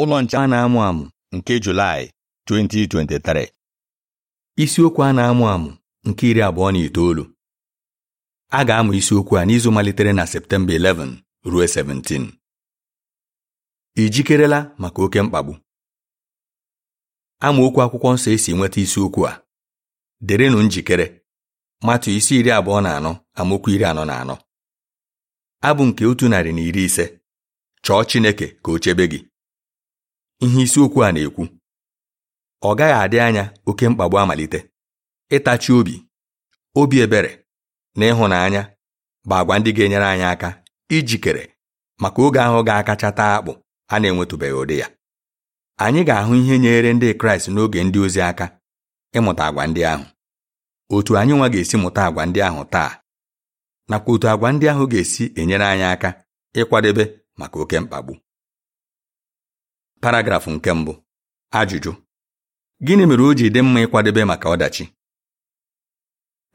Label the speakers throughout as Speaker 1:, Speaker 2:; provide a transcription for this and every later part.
Speaker 1: ụlọ nche a na-amụ amụ nke Julaị 2023 isiokwu a na-amụ amụ nke iri abụọ na itoolu a ga-amụ isiokwu a n'izu malitere na Septemba 11 ruo 17 ị jikerela maka oke mkpagbu amaokwu akwụkwọ nsọ esi nweta isiokwu a derenụ njikere matụ isi iri abụọ na anọ amaokwu iri anọ na anọ abụ nke otu narị na iri ise chọọ Chineke ka o chebe gị ihe isiokwu a na-ekwu ọ gaghị adị anya oke mkpagbu amalite ịtachi obi obi ebere na ịhụnanya bụ agwa ndị ga-enyere anyị aka ijikere maka oge ahụ ga-akacha taa akpụ a na-enwetụbeghị ụdị ya anyị ga-ahụ ihe nyere ndị Kraịst n'oge ndị ozi aka ịmụta agwa ndị ahụ otu anyị nwa ga-esi mụta agwa ndị ahụ taa nakwa otu agwa ndị ahụ ga-esi enyere anyị aka ịkwadebe maka oke mkpagbu paragrafụ nke mbụ ajụjụ gịnị mere o ji dị mma ịkwadebe maka ọdachi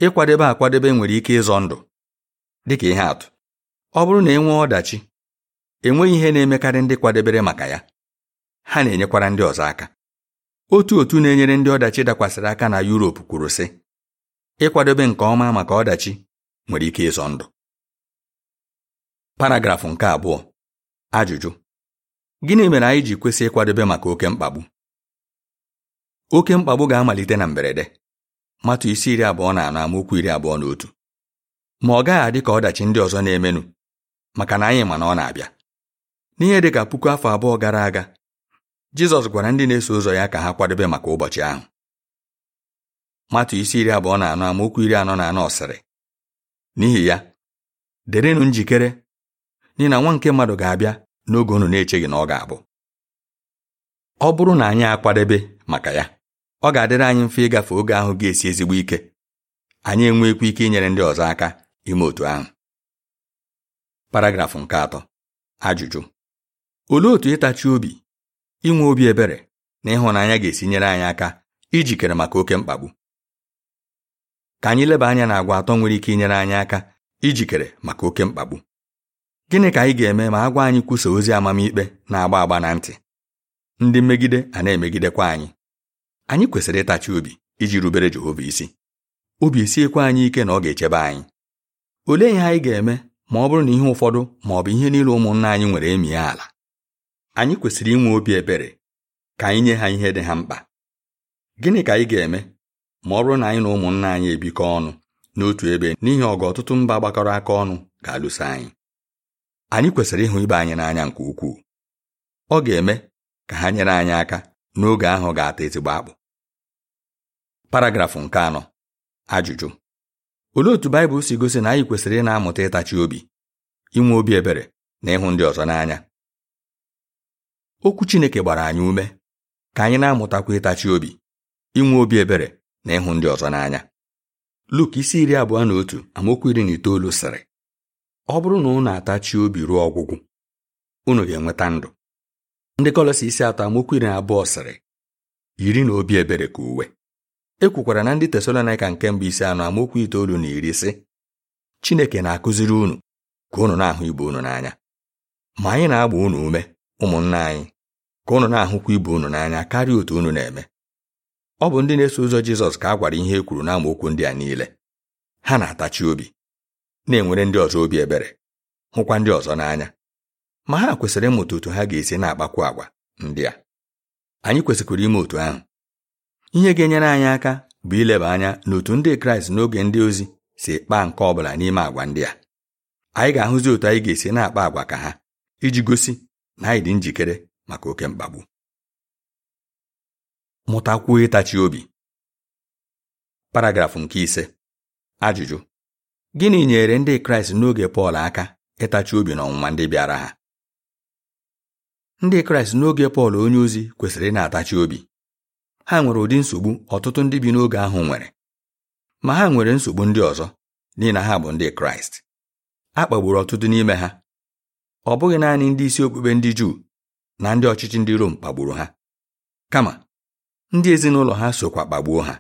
Speaker 1: ịkwadebe akwadebe nwere ike ịzọ ndụ dịka ihe atụ ọ bụrụ na e nwee ọdachi enweghị ihe na-emekarị ndị kwadebere maka ya ha na-enyekwara ndị ọzọ aka otu otu na-enyere ndị ọdachi dakwasịrị aka na Yuropu kwuru sị ịkwadebe nke ọma maka ọdachi nwere ike ịzọ ndụ paragrafụ nke abụọ ajụjụ Gịnị mere anyị ji kwesị ịkwadebe maka oke mkpagbu? Oke mkpagbu ga-amalite na mberede. Matụ isi iri abụọ na anọ amaokwu iri abụọ na otu. Ma ọ gaghị adị ka ọdachi ndị ọzọ na-emenụ maka na anyị ma na ọ na-abịa. N'ihe dị ka puku afọ abụọ gara aga, Jizọs gwara ndị na-eso ụzọ ya ka ha kwadebe maka ụbọchị ahụ. Matụ isi iri abụọ na anọ amaokwu iri anọ na anọ ọsịrị N'ihi ya, derenụ njikere n'ihi na nwa nke mmadụ ga-abịa n'oge unu na-echeghị na ọ ga-abụ ọ bụrụ na anyị akwadebe maka ya ọ ga-adịrị anyị mfe ịgafe oge ahụ ga-esi ezigbo ike anyị enwekwa ike inyere ndị ọzọ aka ime otu ahụ paragrafụ nke atọ ajụjụ olee otu ịtachi obi inwe obi ebere na ịhụnanya ga-esi nyere anyị aka ijikere maka oke mkpagbu ka anyị leba anya na agwa atọ nwere ike inyere anyị aka ijikere maka oke mkpagbu gịnị ka anyị ga-eme ma agwa anyị kwusa ozi amamikpe na-agba agba na ntị ndị mmegide a na-emegidekwa anyị anyị kwesịrị ịtachi obi iji rubere Jehova isi obi esiekwa anyị ike na ọ ga-echebe anyị olee ihe anyị ga-eme ma ọ bụrụ na ihe ụfọdụ ma ọ bụ ihe niile ụmụnna anyị nwere emie ala anyị kwesịrị inwe obi ebere ka anyị nye ha ihe dị ha mkpa gịnị ka anyị ga-eme ma ọ bụrụ na anyị na ụmụnna anyị ebikọ ọnụ n'otu ebe n'ihi ọgụ ọtụtụ mba gbakọrọ aka ọnụ ga-alụso anyị anyị kwesịrị ịhụ ibe anyị n'anya nke ukwuu ọ ga-eme ka ha nyere anyị aka n'oge ahụ ga-ata ezigbo akpụ paragrafụ nke anọ ajụjụ olee otu Baịbụl si gosi na anyị kwesịrị ị na-amụta ịtachi obi inwe obi ebere na ịhụ ndị ọzọ n'anya okwu Chineke gbara anyị ume ka anyị na-amụtakwa ịtachi obi inwe obi ebere na ịhụ ndị ọzọ n'anya Luk isi iri abụọ na otu amaokwu iri na itoolu sịrị ọ bụrụ na unu atachi obi ruo ọgwụgwụ unu ga-enweta ndụ ndị kọlọsi isi atọ amokwu iri na abụọ sịrị yiri na obi ebere ka uwe ekwukwara na ndị tesalonika nke mbụ isi anọ amokwu itoolu na iri sị Chineke na-akụziri unu ka unu na-ahụ ibe unu n'anya ma anyị na-agba unu ume ụmụnna anyị ka unu na-ahụkwa ibe unu n'anya karịa otu unu na-eme ọ bụ ndị na-eso ụzọ Jizọs ka a gwara ihe e kwuru n'amaokwu ndị a niile ha na-atachi obi na-enwere ndị ọzọ obi ebere hụkwa ndị ọzọ n'anya ma ha kwesịrị ịmụta otu ha ga-esi na akpakwu agwa ndị a anyị kwesịkwara ime otu ahụ ihe ga-enyere anyị aka bụ ileba anya n'otu ndị kraịst n'oge ndị ozi si kpaa nke ọ bụla n'ime agwa ndị a anyị ga-ahụzi otu anyị ga-esi na-akpa agwa ka ha iji gosi na anyị dị njikere maka oke mkpagbu mụtakwuo ịtachi obi paragrafụ nke ise ajụjụ Gịnị nyere ndị Kraịst n'oge Pọl aka ịtachi obi n'ọnwụnwa ndị bịara ha? Ndị Kraịst n'oge Pọl onyeozi kwesịrị ị na-atachi obi. Ha nwere ụdị nsogbu ọtụtụ ndị bi n'oge ahụ nwere, ma ha nwere nsogbu ndị ọzọ n'ihi na ha bụ ndị Kraịst. A kpagburu ọtụtụ n'ime ha. Ọ bụghị naanị ndị isi okpukpe ndị Juu na ndị ọchịchị ndị Rom kpagburu ha, kama ndị ezinụlọ ha sokwa kpagbuo ha.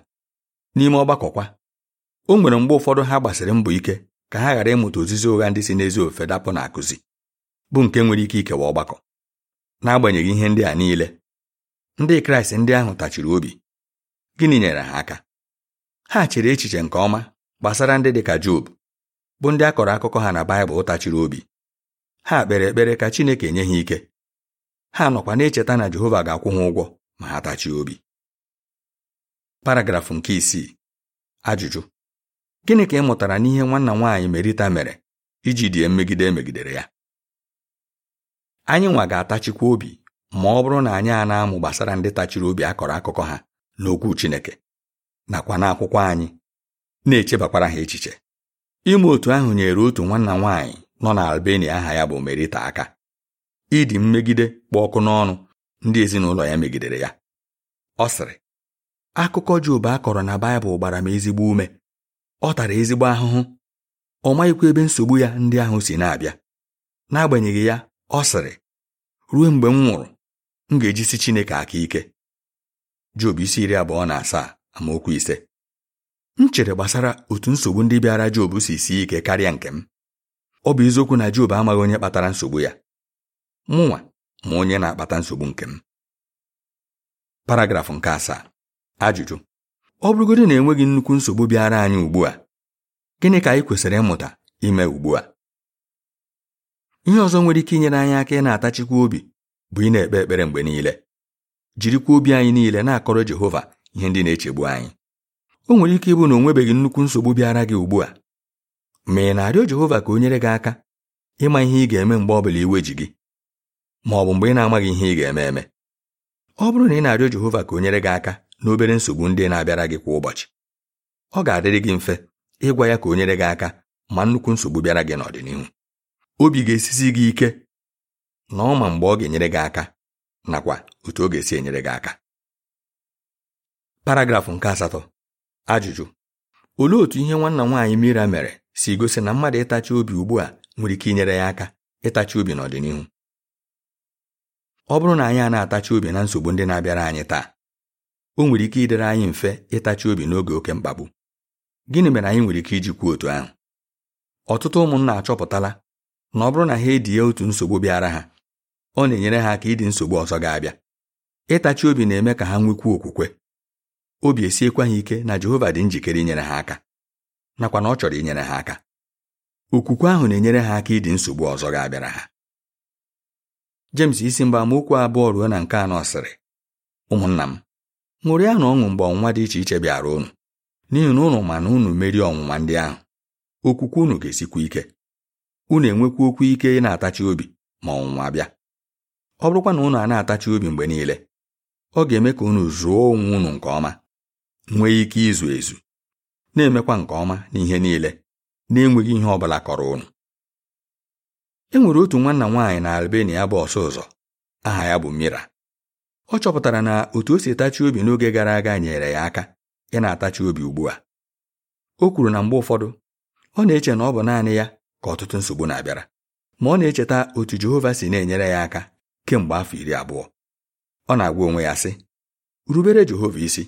Speaker 1: N'ime ọgbakọkwa o nwere mgbe ụfọdụ ha gbasiri mbọ ike ka ha ghara ịmụta ozizi ụgha ndị si n'ezi ofe dapụ na akụzi bụ nke nwere ike ikewa ọgbakọ n'agbanyeghị ihe ndị a niile ndị kraịst ndị ahụ tachiri obi gịnị nyere ha aka ha chere echiche nke ọma gbasara ndị dị ka job bụ ndị a kọrọ akụkọ ha na baịbụl tachiri obi ha kpere ekpere ka chineke nye ha ike ha nọkwa na-echeta na jehova ga-akwụ ha ụgwọ ma ha tachie obi paragrafụ nke isii ajụjụ gịnị ka ị mụtara n'ihe nwanna nwaanyị merita mere iji die mmegide emegidere ya anyị nwa ga-atachikwa obi ma ọ bụrụ na anyị a na-amụ gbasara ndị tachiri obi akọrọ akụkọ ha n'okwu Chineke nakwa n'akwụkwọ anyị na-echebakwara ha echiche ime otu ahụ nyere otu nwanna nwaanyị nọ na Albania aha ya bụ Merita aka ịdị mmegide kpụ ọkụ n'ọnụ ndị ezinụlọ ya megidere ya ọ sịrị akụkọ Job a kọrọ na Baịbụl gbara m ezigbo ume ọ tara ezigbo ahụhụ ọ maghịkwa ebe nsogbu ya ndị ahụ si na-abịa n'agbanyeghị ya ọ sịrị ruo mgbe m nwụrụ m ga-ejisi Chineke aka ike Job isi iri abụọ na asaa amaokwu ise m chere gbasara otu nsogbu ndị bịara Job si sie ike karịa nke m ọ bụ eziokwu na Job amaghị onye kpatara nsogbu ya mụnwa ma onye na-akpata nsogbu nke m paragrafụ nke asaa ajụjụ ọ bụrụgodị na enweghị nnukwu nsogbu bịara anyị ugbu a gịnị ka anyị kwesịrị ịmụta ime ugbu a ihe ọzọ nwere ike inyere anyị aka ị na-atachikwa obi bụ ị na-ekpe ekpere mgbe niile jirikwa obi anyị niile na-akọrọ Jehova ihe ndị na-echegbu anyị o nwere ike ịbụ na o nwebeghị nnukwu nsogbu bịara gị ugbu a ma ị na-arịọ Jehova ka o nyere gị aka ịma ihe ị ga-eme mgbe ọ bụla iwe ji gị ma ọ bụ mgbe ị na-amaghị ihe ị ga-eme eme ọ bụrụ na ị na-arịọ Jehova ka o nyere gị aka na obere nsogbu ndị na-abịara gị kwa ụbọchị ọ ga-adịrị gị mfe ịgwa ya ka o nyere gị aka ma nnukwu nsogbu bịara gị n'ọdịnihu obi ga-esisi gị ike na ma mgbe ọ ga-enyere gị aka nakwa otu ọ ga-esi enyere gị aka paragrafụ nke asatọ ajụjụ olee otu ihe nwanna nwaanyị Mira mere si gosi na mmadụ ịtachi obi ugbu a nwere ike inyere ya aka ịtachi obi n'ọdịnihu ọ bụrụ na anyị a na-atachi obi na nsogbu ndị na-abịara anyị taa o nwere ike ịdịrị anyị mfe ịtachi obi n'oge oke mkpagbu gịnị mere anyị nwere ike iji kwuo otu ahụ ọtụtụ ụmụnna achọpụtala na ọ bụrụ na ha edie otu nsogbu bịara ha ọ na-enyere ha aka ịdị nsogbu ọzọ ga-abịa ịtachi obi na-eme ka ha nwekwuo okwukwe obi esiekwa ha ike na Jehova dị njikere inyere ha aka nakwa na ọ chọrọ inyere ha aka okwukwe ahụ na-enyere ha aka ịdị nsogbu ọzọ ga-abịara ha James isi mgbe amaokwu abụọ ruo na nke anọ sịrị ụmụnna m ya na ọṅụ mgbe ọnwụnwa dị iche iche bịara unu n'ihi na ụnụ ma na unu merie ọnwụnwa ndị ahụ okwukwe unu ga-esikwa ike unu enwekwa okwu ike ị na-atachi obi ma ọnwụnwa bịa ọ bụrụkwa na ụnụ a na-atachi obi mgbe niile ọ ga-eme ka unu zụọ onwe unu nke ọma nwee ike izu ezu na-emekwa nke ọma n'ihe niile na-enweghị ihe ọ bụla kọrọ unu e nwere otu nwanna nwaanyị na Albania bụ ọsụ ụzọ aha ya bụ Mira ọ chọpụtara na otu o si etachi obi n'oge gara aga nyere ya aka ya na-atachi obi ugbu a o kwuru na mgbe ụfọdụ ọ na-eche na ọ bụ naanị ya ka ọtụtụ nsogbu na-abịara ma ọ na-echeta otu Jehova si na-enyere ya aka kemgbe afọ iri abụọ ọ na-agwa onwe ya sị rubere Jehova isi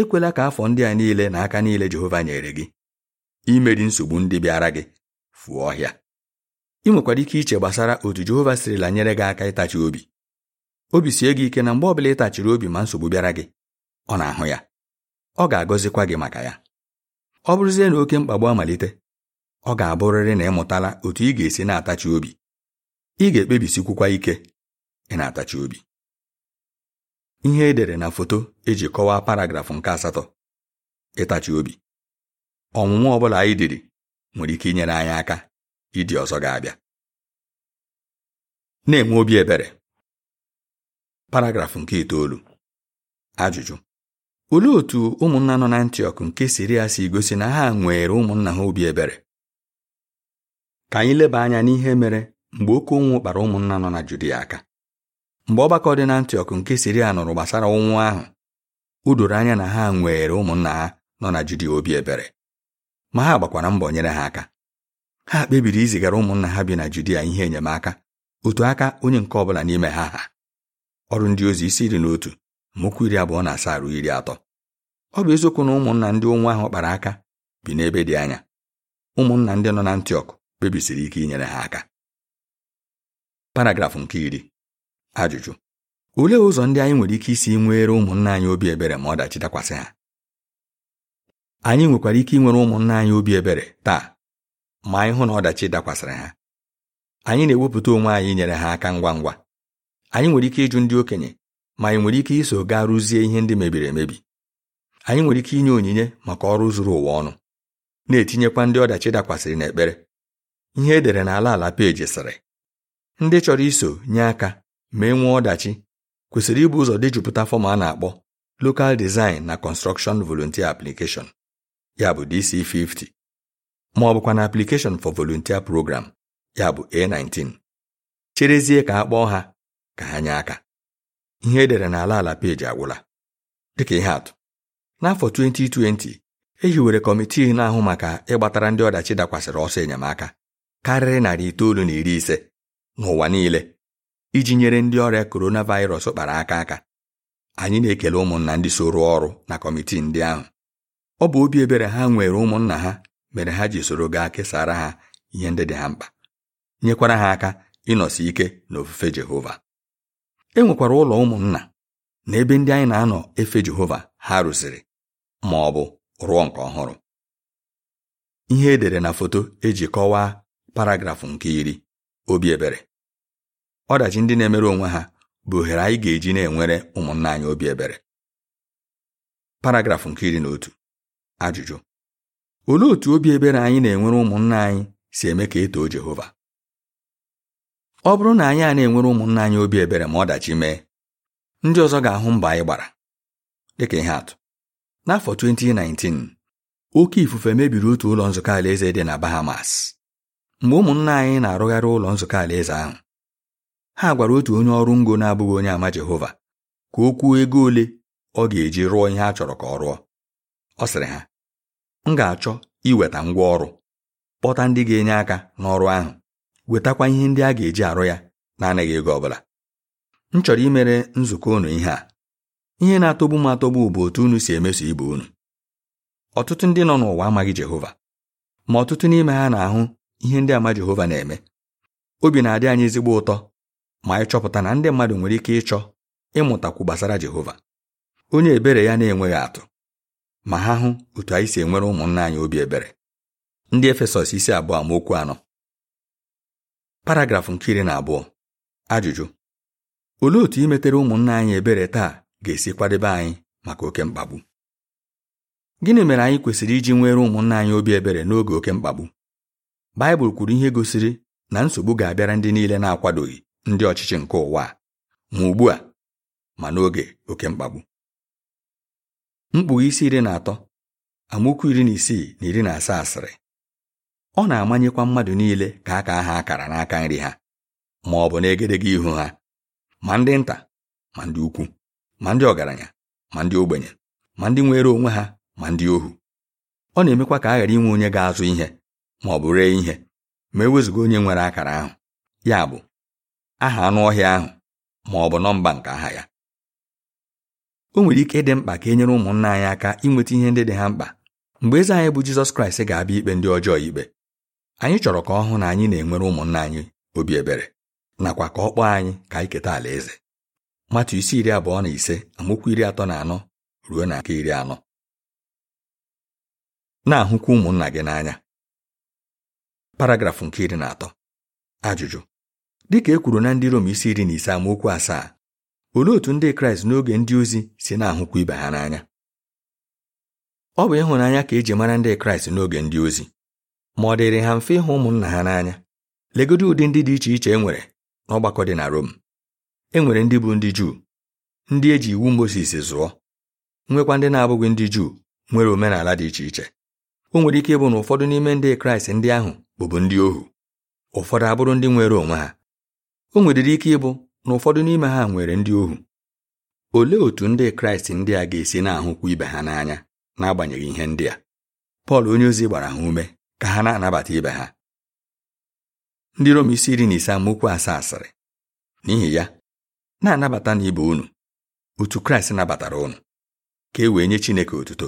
Speaker 1: ekwela ka afọ ndị a niile na aka niile Jehova nyere gị imeri nsogbu ndị bịara gị fụọ ọhịa ị nwekwara ike iche gbasara otu Jehova sirila nyere gị aka ịtachi obi obi sie gị ike na mgbe ọbụla ịtachiri obi ma nsogbu bịara gị ọ na-ahụ ya ọ ga-agọzikwa gị maka ya ọ bụrụzie na oke mkpagbu amalite ọ ga-abụrịrị na ịmụtala otu ị ga-esi na-atachi obi ị ga-ekpebisikwukwa ike ị na-atachi obi ihe edere na foto eji kọwaa paragrafụ nke asatọ ịtachi obi ọnwụnwa ọ bụla anyị diri nwere ike inyere anyị aka ịdị ọzọ ga-abịa na-enwe obi ebere paragrafụ nke itoolu ajụjụ olee otu ụmụnna nọ na Antiọk nke Siria si gosi na ha nwere ụmụnna ha obi ebere ka anyị leba anya n'ihe mere mgbe oke ụnwụ kpara ụmụnna nọ na Judia aka mgbe ọgbakọ dị na Antiọk nke Siria nụrụ gbasara ụnwụ ahụ o doro anya na ha nwere ụmụnna ha nọ na Judia obi ebere ma ha gbakwara mbọ nyere ha aka ha kpebiri izigara ụmụnna ha bi na Judia ihe enyemaka otu aka onye nke ọ bụla n'ime ha ha ọrụ ndị ozi isi iri n'otu otu mokwu iri abụọ na asaa ruo iri atọ ọ bụ eziokwu na ụmụnna ndị ụnwụ ahụ kpara aka bi n'ebe dị anya ụmụnna ndị nọ na Antiọk kpebisiri ike inyere ha aka paragrafụ nke iri ajụjụ olee ụzọ ndị anyị nwere ike isi nwere ụmụnna anyị obi ebere ma ọdachi dakwasị ha anyị nwekwara ike inwere ụmụnna anyị obi ebere taa ma anyị hụ na ọdachi dakwasịrị ha anyị na-ewepụta onwe anyị inyere ha aka ngwa ngwa anyị nwere ike ịjụ ndị okenye ma anyị nwere ike iso gaa rụzie ihe ndị mebiri emebi anyị nwere ike inye onyinye maka ọrụ zuru ụwa ọnụ na-etinyekwa ndị ọdachi dakwasịrị n'ekpere ihe edere na ala ala peji sịrị ndị chọrọ iso nye aka ma e nwee ọdachi kwesịrị ịbụ ụzọ jupụta fọm a na-akpọ Local Design na Construction Volunteer Application ya bụ DC50 ma ọ bụkwa na Application for Volunteer Program ya bụ A19 cherezie ka a kpọọ ha ka ha nye aka ihe edere n'ala ala peji agwụla dịka ihe atụ n'afọ 2020 e hiwere kọmitii na-ahụ maka ịgbatara ndị ọdachi dakwasịrị ọsọ enyemaka karịrị narị itoolu na iri ise n'ụwa niile iji nyere ndị ọrịa coronavirus kpara aka aka anyị na-ekele ụmụnna ndị soro ọrụ na kọmitii ndị ahụ ọ bụ obi ebere ha nwere ụmụnna ha mere ha ji soro gaa kesara ha ihe ndị dị ha mkpa nyekwara ha aka ịnọsi ike n'ofufe Jehova e nwekwara ụlọ ụmụnna na ebe ndị anyị na-anọ efe Jehova ha rụziri ma ọ bụ rụọ nke ọhụrụ ihe edere na foto eji kọwaa paragrafụ nke iri obi ebere ọdachi ndị na-emere onwe ha bụ ohere anyị ga-eji na-enwere ụmụnna anyị obi ebere paragrafụ nke iri na otu ajụjụ olee otu obi ebere anyị na-enwere ụmụnna anyị si eme ka e too Jehova ọ bụrụ na anyị a na-enwere ụmụnna anyị obi ebere ma ọdachi mee ndị ọzọ ga-ahụ mba anyị gbara dịka ihe atụ n'afọ 2019 oke ifufe mebiri otu ụlọ nzukọ alaeze dị na Bahamas mgbe ụmụnna anyị na-arụgharị ụlọ nzukọ alaeze ahụ ha gwara otu onye ọrụ ngo na-abụghị onye ama Jehova ka o kwuo ego ole ọ ga-eji rụọ ihe a chọrọ ka ọ rụọ ọ sịrị ha m ga-achọ iweta ngwa ọrụ kpọta ndị ga-enye aka n'ọrụ ahụ wetakwa ihe ndị a ga-eji arụ ya na-anaghị ego ọbụla m chọrọ imere nzukọ unu ihe a ihe na-atọgbu m atọgbu bụ otu unu si emeso ibe unu ọtụtụ ndị nọ n'ụwa amaghị Jehova ma ọtụtụ n'ime ha na-ahụ ihe ndị ama Jehova na-eme obi na-adị anyị ezigbo ụtọ ma anyị chọpụta na ndị mmadụ nwere ike ịchọ ịmụtakwu gbasara Jehova onye ebere ya na-enweghị atụ ma ha hụ otu anyị si enwere ụmụnna anyị obi ebere ndị Efesọs isi abụọ okwu anọ paragrafụ nke iri na abụọ ajụjụ olee otu imetere ụmụnna anyị ebere taa ga-esi kwadebe anyị maka oke mkpagbu gịnị mere anyị kwesịrị iji nwere ụmụnna anyị obi ebere n'oge oke mkpagbu Baịbụl kwuru ihe gosiri na nsogbu ga-abịara ndị niile na-akwadoghị ndị ọchịchị nke ụwa ma ugbu a ma n'oge oke mkpagbu mkpughe isi iri na atọ amaokwu iri na isii na iri na asaa asịrị ọ na-amanyekwa mmadụ niile ka aka ha akara n'aka nri ha ma ọ bụ n'egedege ihu ha ma ndị nta ma ndị ukwu ma ndị ọgaranya ma ndị ogbenye ma ndị nwere onwe ha ma ndị ohu ọ na-emekwa ka a ghara inwe onye ga-azụ ihe ma ọ bụ ree ihe ma ewezuga onye nwere akara ahụ ya bụ aha anụ ọhịa ahụ ma ọ bụ nọmba nke aha ya o nwere ike ịdị mkpa ka e nyere ụmụnna anyị aka inweta ihe ndị dị ha mkpa mgbe eze anyị bụ Jizọs Kraịst ga-abịa ikpe ndị ọjọọ ikpe anyị chọrọ ka ọ hụ na anyị na-enwere ụmụnna anyị obi ebere nakwa ka ọ kpọọ anyị ka anyị keta alaeze matu isi iri abụọ na ise amaokwu iri atọ na anọ ruo na nke iri anọ na-ahụkwa ụmụnna gị n'anya paragrafụ nke iri na atọ ajụjụ ka e kwuru na ndị Rom isi iri na ise amaokwu asaa olee otu ndị Kraịst n'oge ndị ozi si na-ahụkwa ibe ha n'anya ọ bụ ịhụnanya ka e eji mara ndị Kraịst n'oge ndị ozi ma ọ dịrị ha mfe ịhụ ụmụnna ha n'anya legodi ụdị ndị dị iche iche e nwere n'ọgbakọ dị na Rom e nwere ndị bụ ndị Juu ndị e ji iwu Mozis zụọ nwekwa ndị na-abụghị ndị Juu nwere omenala dị iche iche o nwere ike ịbụ na ụfọdụ n'ime ndị Kraịst ndị ahụ bụbu ndị ohu ụfọdụ abụrụ ndị nwere onwe ha o nwedịrị ike ịbụ na ụfọdụ n'ime ha nwere ndị ohu olee otú ndị Kraịst ndị a ga-esi na-ahụkwu ibe ha n'anya n'agbanyeghị ihe ndị a Pọl onyeozi gbara ha ume ka ha na-anabata ibe ha ndị Rom isi iri na ise amaokwu asaa asịrị n'ihi ya na-anabata na ibe unu otu Kraịst nabatara unu ka e wee nye Chineke otuto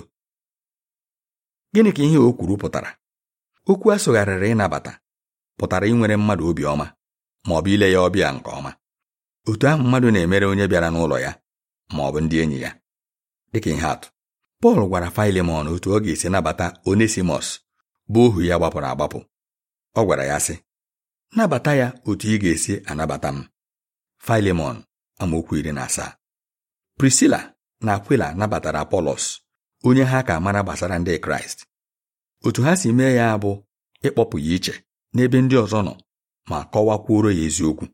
Speaker 1: gịnị ka ihe o kwuru pụtara okwu a sụgharịrị ịnabata pụtara inwere mmadụ obiọma ma ọ bụ ile ya ọbịa nke ọma otu ahụ mmadụ na-emere onye bịara n'ụlọ ya ma ọ bụ ndị enyi ya dịka ihe atụ Pọl gwara Filemọn otu ọ ga-esi nabata Onesimọs bụ ohu ya gbapụrụ agbapụ ọ gwara ya sị nabata ya otu ị ga-esi anabata m Filemon amaokwu iri na asaa Prisila na Akwila nabatara Apolos onye ha ka mara gbasara ndị Kraịst otu ha si mee ya bụ ịkpọpụ ya iche n'ebe ndị ọzọ nọ ma kọwakwuoro ya eziokwu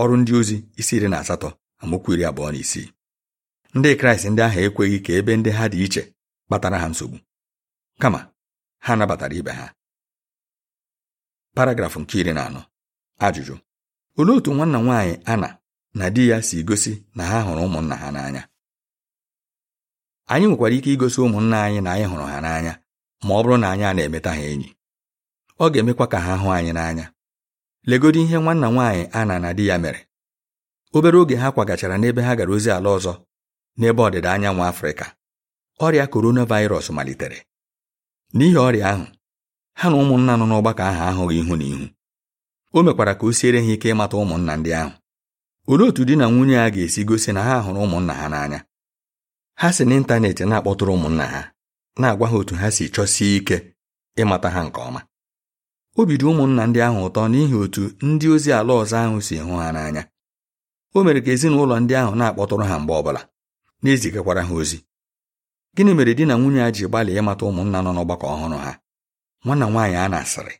Speaker 1: ọrụ ndị ozi isi iri na asatọ amaokwu iri abụọ na isii ndị Kraịst ndị ahụ ekweghị ka ebe ndị ha dị iche kpatara ha nsogbu kama ha nabatara ibe ha paragrafụ nke iri na anọ ajụjụ olee otu nwanna nwaanyị ana na di ya si gosi na ha hụrụ ụmụnna ha n'anya anyị nwekwara ike igosi ụmụnna anyị na anyị hụrụ ha n'anya ma ọ bụrụ na anyị a na-emeta ha enyi ọ ga-emekwa ka ha hụ anyị n'anya legodo ihe nwanna nwaanyị ana na di ya mere obere oge ha kwagachara n'ebe ha gara ozi ala ọzọ n'ebe ọdịda anyanwụ Afrịka ọrịa coronavirus malitere n'ihi ọrịa ahụ ha na ụmụnna nọ n'ọgbakọ ahụ ahụghị ihu na ihu o mekwara ka o siere ha ike ịmata ụmụnna ndị ahụ olee otu di na nwunye a ga-esi gosi na ha hụrụ ụmụnna ha n'anya ha si n'ịntanetị na-akpọtụrụ ụmụnna ha na-agwa ha otu ha si chọsie ike ịmata ha nke ọma o bido ụmụnna ndị ahụ ụtọ n'ihi otu ndị ozi ala ọzọ ahụ si hụ ha n'anya o mere ka ezinụlọ ndị ahụ na-akpọtụrụ ha mgbe bụla na-ezigakwara ha ozi gịnị mere di na nwunye a ji gbalị ịmata ụmụnna nọ n'ọgbakọ ọhụrụ ha nwanna nwaanyị a na-asịrị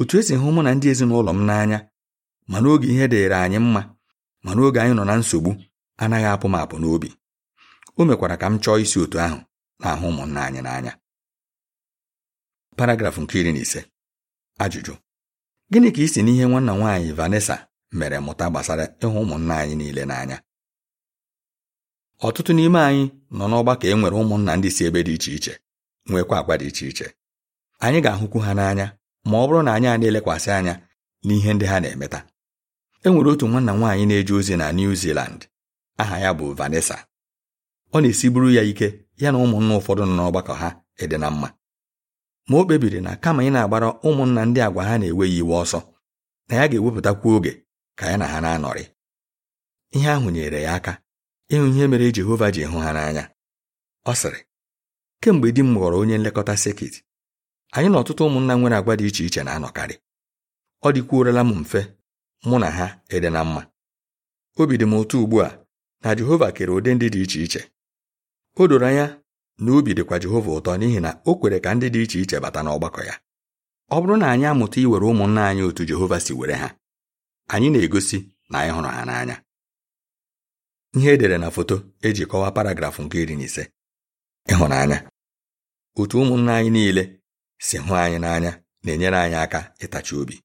Speaker 1: otu esi hụ mụ na ndị ezinụlọ m n'anya ma n'oge ihe dịịrị anyị mma ma n'oge anyị nọ na nsogbu anaghị apụ m apụ n'obi o mekwara ka m chọọ isi otu ahụ na-ahụ ụmụnna anyị n'anya paragrafụ nke iri na ise ajụjụ gịnị ka isi n'ihe nwanna nwaanyị Vanessa mere mụta gbasara ịhụ ụmụnna anyị niile n'anya ọtụtụ n'ime anyị nọ n'ọgbakọ e nwere ụmụnna ndị si ebe dị iche iche nwekwa agwa dị iche iche anyị ga-ahụkwu ha n'anya ma ọ bụrụ na anyị a na-elekwasị anya n'ihe ndị ha na-emeta e nwere otu nwanna nwaanyị na-eje ozi na New Zealand aha ya bụ Vanessa ọ na-esiburu ya ike ya na ụmụnna ụfọdụ nọ n'ọgbakọ ha ịdị na mma ma o kpebiri na kama ị na-agbara ụmụnna ndị agwa ha na-eweghị iwe ọsọ na ya ga-ewepụtakwu oge ka ya na ha na-anọrị ihe ahụ nyere ya aka ịhụ ihe mere Jehova ji hụ ha n'anya ọ sịrị kemgbe di m ghọrọ onye nlekọta sekit anyị na ọtụtụ ụmụnna nwere agwa dị iche iche na-anọkarị ọ dịkwuorela m mfe mụ na ha ịdị na mma obi dị m ụtọ ugbu a na Jehova kere ụdị ndị dị iche iche o doro anya na obi dịkwa Jehova ụtọ n'ihi na o kwere ka ndị dị iche iche bata n'ọgbakọ ya ọ bụrụ na anyị amụta iwere ụmụnna anyị otu Jehova si were ha anyị na-egosi na anyị hụrụ ha n'anya ihe edere na foto eji kọwaa paragrafụ nke iri na ise ịhụnanya otu ụmụnna anyị niile si hụ anyị n'anya na-enyere anyị aka ịtachi obi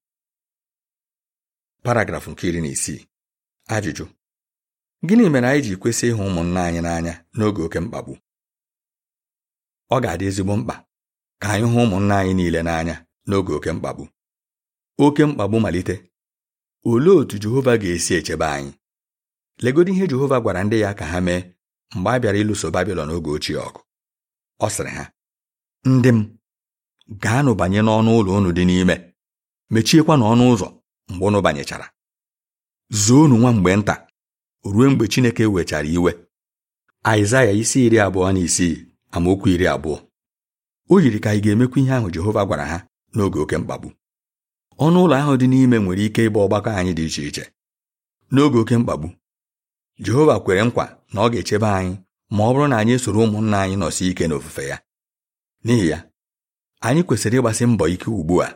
Speaker 1: paragrafụ nke iri na isii ajụjụ gịnị mere anyị ji kwesị ịhụ ụmụnna anyị n'anya n'oge oke mkpagbu ọ ga-adị ezigbo mkpa ka anyị hụ ụmụnna anyị niile n'anya n'oge oke mkpagbu oke mkpagbu malite olee otú Jehova ga-esi echebe anyị Legodo ihe Jehova gwara ndị ya ka ha mee mgbe a bịara ịlụso Babilọn oge ochie ọgụ ọ sịrị ha ndị m gaanụ banye n'ọnụ ụlọ unu dị n'ime mechiekwa n'ọnụ ụzọ mgbe ụnụ banyechara zoonu nwa mgbe nta ruo mgbe Chineke wechara iwe Aịzaya isi iri abụọ na isii amaokwu iri abụọ o yiri ka anyị ga-emekwa ihe ahụ Jehova gwara ha n'oge oke mkpagbu ọnụ ụlọ ahụ dị n'ime nwere ike ịbụ ọgbakọ anyị dị iche iche n'oge oke mkpagbu Jehova kwere nkwa na ọ ga-echebe anyị ma ọ bụrụ na anyị soro ụmụnna anyị nọsi ike n'ofufe ya n'ihi ya anyị kwesịrị ịgbasi mbọ ike ugbu a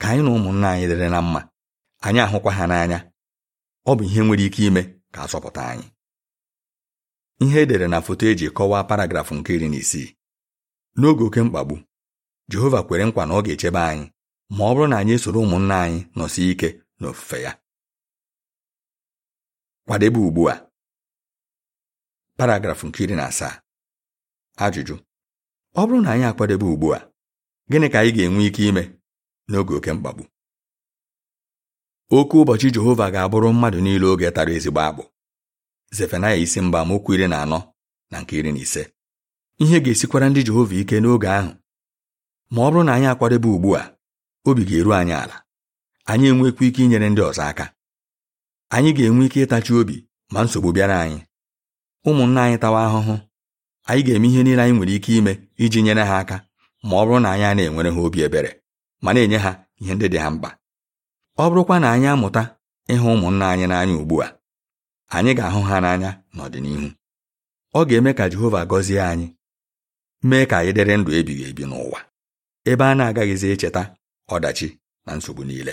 Speaker 1: ka anyị na ụmụnna anyị dịrị na mma anyị ahụkwa ha n'anya ọ bụ ihe nwere ike ime ka sọpụta anyị ihe edere na foto eji kọwaa paragrafụ nke iri na isii n'oge oke mkpagbu Jehova kwere nkwa na ọ ga-echebe anyị ma ọ bụrụ na anyị soro ụmụnna anyị nọsi ike n'ofufe ya kwadebe ugbu a paragrafụ nke iri na asaa ajụjụ ọ bụrụ na anyị akwadebe ugbu a gịnị ka anyị ga-enwe ike ime n'oge oke mkpagbu oke ụbọchị Jehova ga-abụrụ mmadụ niile oge tara ezigbo akpụ Zefanaya isi mba mokwu iri na anọ na nke iri na ise ihe ga-esikwara ndị Jehova ike n'oge ahụ ma ọ bụrụ na anyị akwadebe ugbu a obi ga-eru anyị ala anyị enwekwa ike inyere ndị ọzọ aka anyị ga-enwe ike ịtachi obi ma nsogbu bịara anyị ụmụnna anyị tawa ahụhụ anyị ga-eme ihe niile anyị nwere ike ime iji nyere ha aka ma ọ bụrụ na anyị na-enwere ha obi ebere ma na-enye ha ihe ndị dị ha mkpa ọ bụrụkwa na anyị amụta ịhụ ụmụnna anyị n'anya ugbu a anyị ga-ahụ ha n'anya n'ọdịnihu ọ ga-eme ka Jehova gọzie anyị mee ka anyị dịrị ndụ ebighị ebi n'ụwa ebe a na-agaghịzi echeta ọdachi na nsogbu niile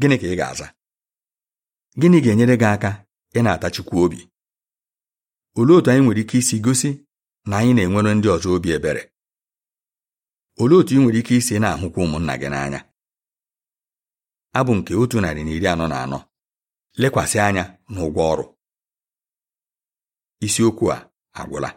Speaker 1: gịnị ka ị ga-aza gịnị ga-enyere gị aka ị na-atachikwa obi olee otu anyị nwere ike isi gosi na anyị na-enwere ndị ọzọ obi ebere olee otu ị nwere ike isi na-ahụkwa ụmụnna gị n'anya abụ nke otu narị na iri anọ na anọ lekwasị anya n'ụgwọ ọrụ isiokwu a agwụla